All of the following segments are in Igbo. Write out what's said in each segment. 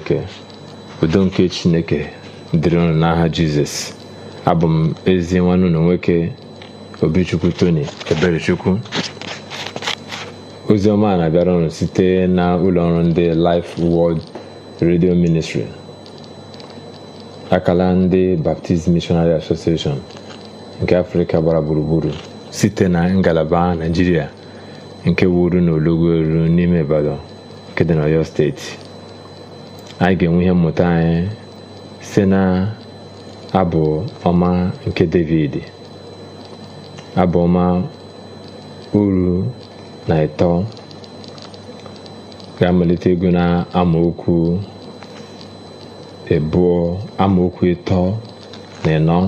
chineke udo nke chineke dịrị ụnụ n'aha jizọs abụ m ezi nwanne unu nwoke obichukwu tony eberechukwu a na-abịara ụnụ site na ụlọ ụlọọrụ ndị life world redio ministri akala ndị baptist missionary association nke afrịka gbara gburugburu site na ngalaba naijiria nke wuru n'olugbo elu n'ime ibadan nke dị steeti anyị ga-enwe ihe mmụta anyị si na abụ ọma nke david abụ ọma uru na ịtọ ga-amalite ego na amaokwu ebuo amaokwu ịtọ na ịnọ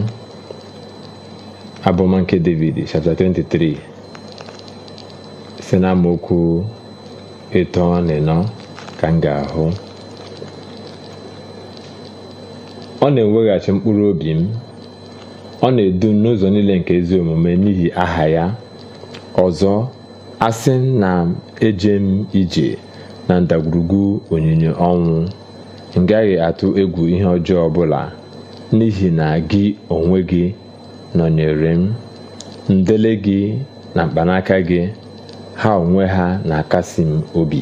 abụ nke david chapter 23 si na amaokwu ịtọ na ịnọ ka m ga-ahụ ọ na-eweghachi mkpụrụ obi m ọ na-edu n'ụzọ niile nke ezi omume n'ihi aha ya ọzọ asị na eje m ije na ndagwurugwu onyinye ọnwụ m gaghị atụ egwu ihe ọjọọ ọbụla n'ihi na gị onwe gị nọnyere m ndele gị na mkpanaka gị ha onwe ha na-akasi m obi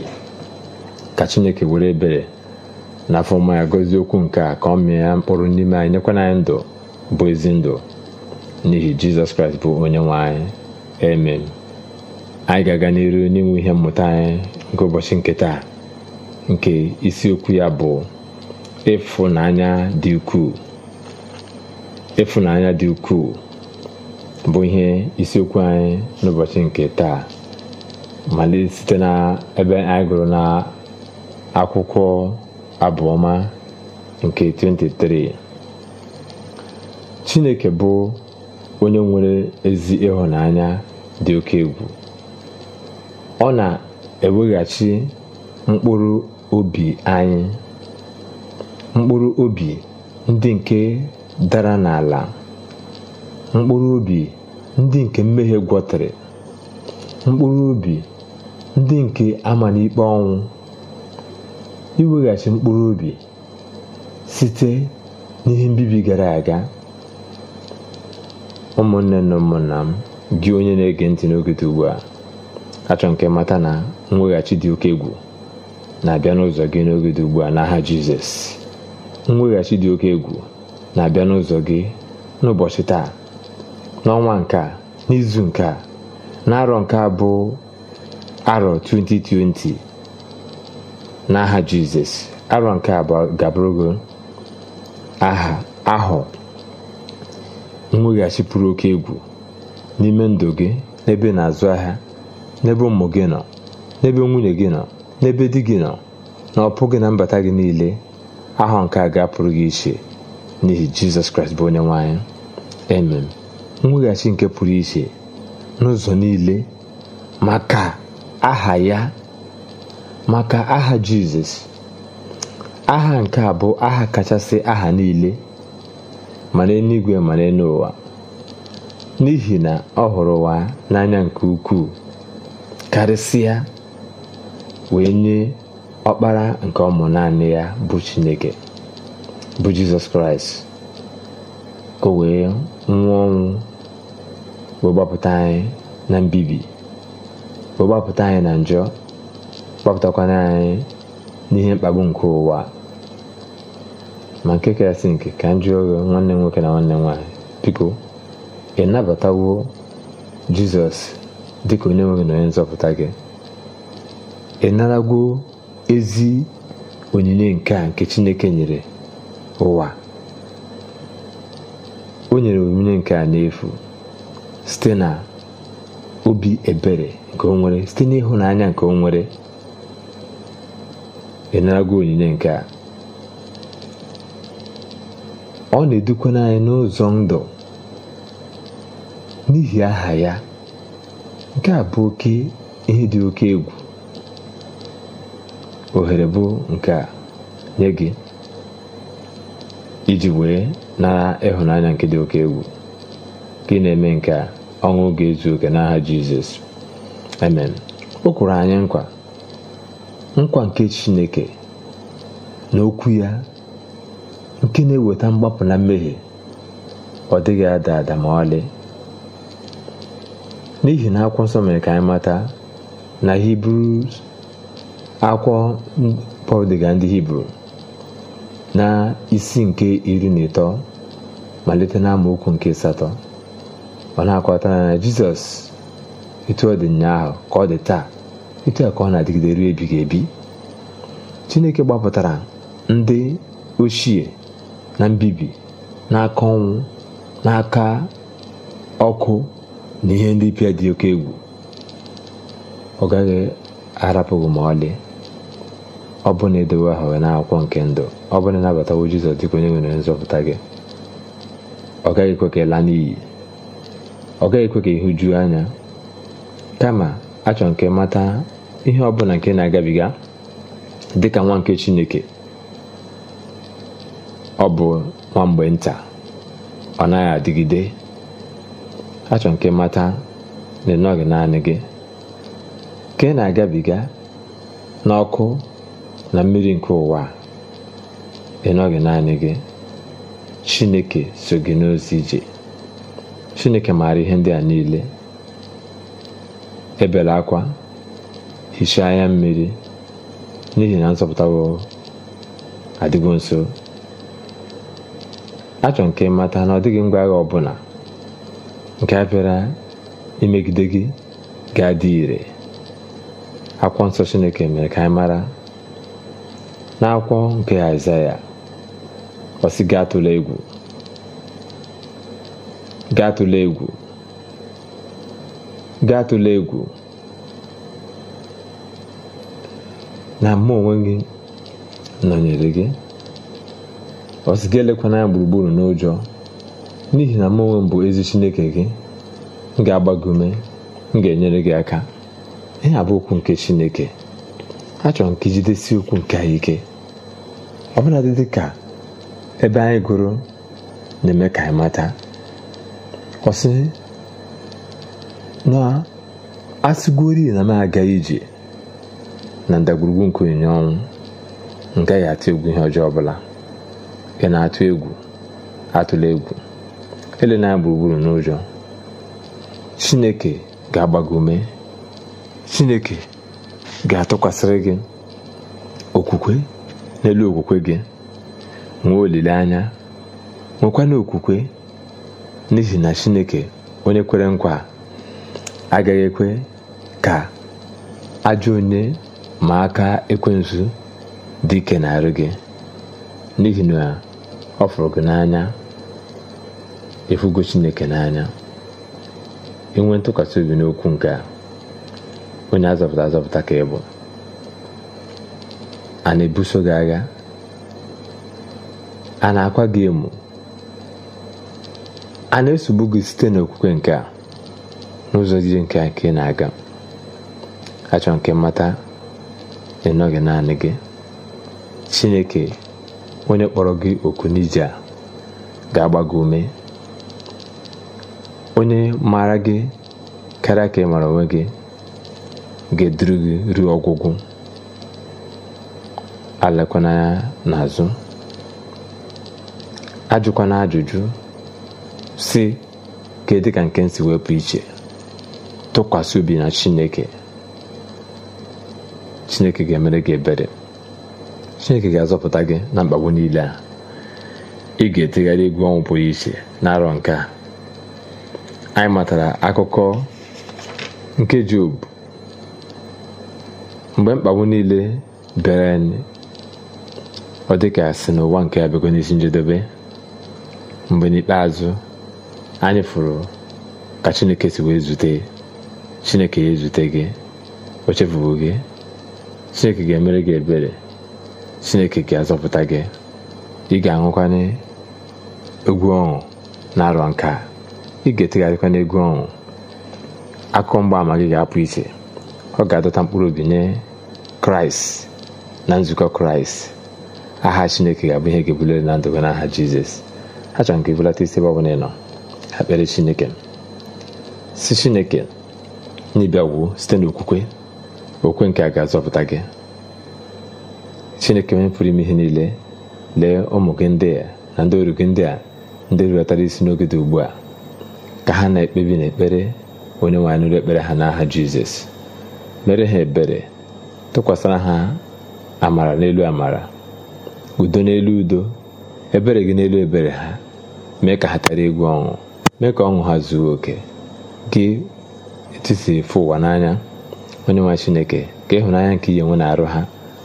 ka Chineke were ebere na afọ mma okwu nke a ka ọ mịa ya mkpụrụ n'ime anyị nyekwana anyị ndụ bụ ezi ndụ n'ihi jizọs kraịst bụ onye nwe anyị amen anyị ga-aga n'iru n'inwe ihe mmụta anyị nke ụbọchị nke taa nke isiokwu ya bụ ịfụnanya dị ukwuu ịfụnanya dị ukwuu bụ ihe isiokwu anyị n'ụbọchị nke taa malite site na ebe anyị gụrụ na akwụkwọ abụọma nke 23 Chineke bụ onye nwere ezi ịhụnanya dị oke egwu ọ na-eweghachi mkpụrụ obi anyị mkpụrụ obi ndị nke dara n'ala mkpụrụ obi ndị nke mmehie gwọtara, mkpụrụ obi ndị nke ama n'ikpe ọnwụ iweghachi mkpụrụ obi site n'ihe mbibi gara aga ụmụnne na ụmụnna m gị onye na-ege ntị n'oge ugbu a achọ nke mata na mweghachi dị oke egwu na-abịa n'ụzọ gị n'oge ugbu a n'aha jizọs mweghachi dị oke egwu na-abịa n'ụzọ gị n'ụbọchị taa n'ọnwa nke a n'izu nke a n'arọ nke a bụ arọ 2020 n'aha jizọs arọ nke abụọ gabụrụgo aha ahụ mweghachi pụrụ oke egwu n'ime ndụ gị n'ebe na-azụ ahịa n'ebe ụmụ gị nọ n'ebe nwunye gị nọ n'ebe di gị nọ na ọpụ gị na mbata gị niile ahụ nke a ga-apụrụ gị iche n'ihi jizọs kraịst bụ onye nwaanyị emem mweghachi nke pụrụ iche n'ụzọ niile maka aha ya maka aha Jizọs aha nke a bụ aha kachasị aha niile ma n'eluigwe ma n'ụwa n'ihi na ọ hụrụ ụwa n'anya nke ukwuu karịsịa wee nye ọkpara nke ọmụ naanị ya bụ Chineke bụ Jizọs Kraịst ka o wee nwụọ ọnwụ wee gbapụta anyị na mbibi wee gbapụta anyị na njọ kpọpụtakwana anyị n'ihe mkpagbu nke ụwa ma nke kasị nke ka m jụọ nwanne nwoke na nwanne nwanyị nwaanyị biko ị nabatawo jizọs dịka onye nwere gị na onye nzọpụta gị ị naragwo ezi onyinye nke a nke chineke nyere ụwa o nyere onyinye nke a n'efu site na obi ebere nke o nwere site n'ịhụnanya nke o nwere ị gị onyinye nke a ọ na-edukwana anyị n'ụzọ ndụ n'ihi aha ya nke a bụ oke ihe dị oke egwu ohere bụ nke a nye gị iji wee nara ịhụnanya nke dị oke egwu gị na-eme nke a ọṅụ ga-ezu oke n'aha Jizọs amen o kwuru anyị nkwa nkwa nke chineke na okwu ya nke na-eweta mgbapụ na mmehie ọ dịghị ada ada ma ọlị n'ihi na akwụkwọ nsọ mere ka anyị mata na hibru akwụkwọ pọl dịga ndị hibru na isi nke iri na ịtọ malite na amaokwu nke satọ ọ na-akọta na jizọs etu ọ dị ụnyaahụ ka ọ dị taa otu a ka ọ na-adịgide ruo ebighị ebi chineke gbapụtara ndị ochie na mbibi n'aka ọnwụ n'aka ọkụ na ihe ndị pịa dị oke egwu ọ gaghị arapụghị ma ọlị ọ bụ na edowe aha na akwụkwọ nke ndụ ọ bụ na ịnabatawo jizọs dịka onye nwere nzọpụta gị ọ gaghị ekwe ka ịla n'iyi ọ gaghị ekwe ka ịhụju anya kama achọ nke mata ihe ọbụla nke na-agabiga dị ka nwa nke chineke ọ bụ nwa mgbe nta ọ naghị adịgide achọ nke mata na ịnọghị naanị gị ka ị na-agabiga n'ọkụ na mmiri nke ụwa ịnọghị naanị gị chineke so gị n'ozi ije chineke maara ihe ndị a niile ebere akwa hichaa anya mmiri n'ihi na nzọpụtawo adịgo nso Achọ nke mata na ọ dịghị ngwa agha ọbụla nke a bịara imegide gị ga-adị ire akwụkwọ nsọ chineke mere ka anyị mara n'akwụkwọ nke aịzaya ọsị gaa tụla egwu gaa tụla egwu gị atụla egwu na mụ onwe gị nọnyere gị ọ sị gị elekwana ya gburugburu n'ụjọ n'ihi na mụ onwe m bụ ezi chineke gị m ga agbagume gị m ga-enyere gị aka ihe a bụ okwu nke chineke a nke ka ijidesi okwu nke anyị ike bụla dị ka ebe anyị gụrụ na-eme ka anyị mata ọsị. na asịgori na m aga ije na ndagwurugwu nke onyinye ọnwụ m atụ egwu ihe ọjọọ ọbụla ị na-atụ egwu atụla egwu elena gburugburu n'ụjọ chineke ga agbagome ume chineke ga-atụkwasịrị gị okwukwe n'elu okwukwe gị nwee olileanya nwekwana okwukwe n'ihi na chineke onye kwere nkwa agaghị ekwe ka ajọ onye ma aka ekwensu dị ike na-arụ gị n'ihi na ọ fụrụ gị n'anya efugo chineke n'anya inwe ntụkwasị obi n'okwu nke a onye azọpụta azọpụta ka ị bụ a na-ebuso gị agha a na-akwa gị emu a na-esogbu gị site n'okwukwe nke a n'ụzọ dị nke a nke na-aga achọ nke mmata ịnọghị naanị gị chineke onye kpọrọ gị oku n'ije a ga-agba gị ume onye maara gị karịa ka ị mara onwe gị ga-eduru gị ruo ọgwụgwụ alakwanaya n'azụ ajụkwana ajụjụ si dị ka nke m si wepụ iche tụkwasị obi na chineke chineke ga-emere gị ebere chineke ga-azọpụta gị na mkpagbu niile a ị ga-etegharị egwu ọnwụ pụrụ iche n'arọ nke a anyị matara akụkọ nke Job mgbe mkpagbu niile bịara anyị ọ dịka si n'ụwa nke abịago n'isi njedebe mgbe n'ikpeazụ anyị fụrụ ka Chineke si wee zute chineke ya ezute gị o gị chineke ga-emere gị ebere chineke ga-azọpụta gị ị ga-aṅụkwanye egwu ọṅụ na-arọ nka ị ga-etegharịkwa n'egwu ọṅụ akụkọ mgbaama gị ga-apụ iche ọ ga-adọta mkpụrụ obi nye kraịst na nzukọ kraịst aha chineke ga-abụ ihe ga-ebulere na ndụ n'aha jizọs achọrọ m ka ibulata isi ebe ọbụla ị nọ chineke si chineke n'ịbịagwuo site n'okwukwe okwe nke a ga-azọpụta gị chineke onye pụrụ ime ihe niile lee ụmụ gị ndị a na ndị oru gị ndị a ndị rulatara isi n'oge dị ugbu a ka ha na-ekpebi na ekpere onye nwe nụrụ ekpere ha n'aha jizọs mere ha ebere tụkwasịra ha amara n'elu amara udo n'elu udo ebere gị n'elu ebere ha mee ka ha tara egwu ọṅụ mee ka ọṅụ ha zuo oke gị etu si ụwa n'anya onye nwe chineke ka ịhụnanya nke ihe nwe na-arụ ha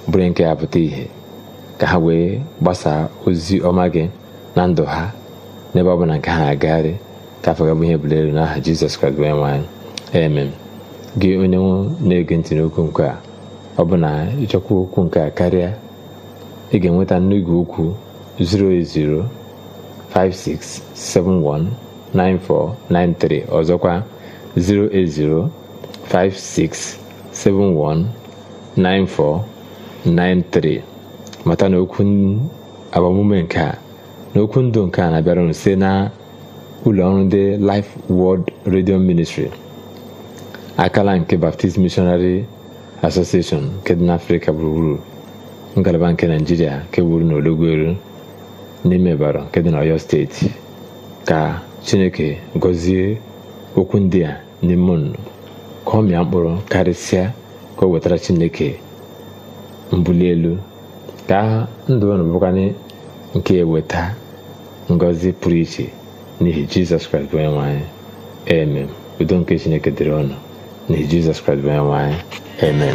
bụrụ nke ya pụta ìhè ka ha wee gbasaa ozi ọma gị na ndụ ha n'ebe ọ bụla nke ha agagharị ka afọ gabụ ihe elu n'aha jizọs kraịst bụ onyenwe anyị gị onye nwe na-ege ntị n'okwu nke ọ bụ na ịchọkwa okwu nke a karịa ị ga-enweta 4 okwu 3 ọzọkwa 08056719493 mata na okwu agbamume nke a na okwu ndụ nke a na-abịara unu na ụlọọrụ ọrụ ndị Life World Radio Ministry akala nke Baptist Missionary Association nke dị n'Afrịka gburugburu ngalaba nke naijiria nke bụrụ na Ologweru n'ime Ịbara nke dị n'Ọyọ steeti ka Chineke gọzie okwu ndị a n'ime unu ka ọ mịa mkpụrụ karịsịa ka o wetara chineke mbuli elu ka ndụ unu bụkwanye nke eweta ngọzi pụrụ iche n'ihi jizọs kraịst onye nwe anyị udo nke chineke dịrị ọnụ n'ihi jizọs kraịst bụ onye nwe